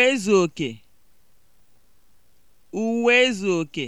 uwezuoke uwezuoke